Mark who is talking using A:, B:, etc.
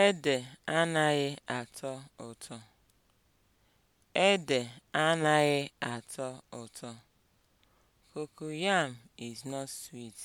A: Ede anaghị atọ ụtọ. Ede anaghị atọ ụtọ. Cocoyam is not
B: sweet.